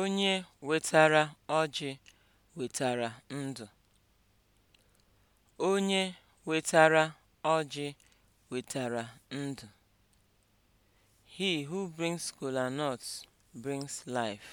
Onye wetara ọjị wetara ndụ. Onye wetara He who brings kola brings life.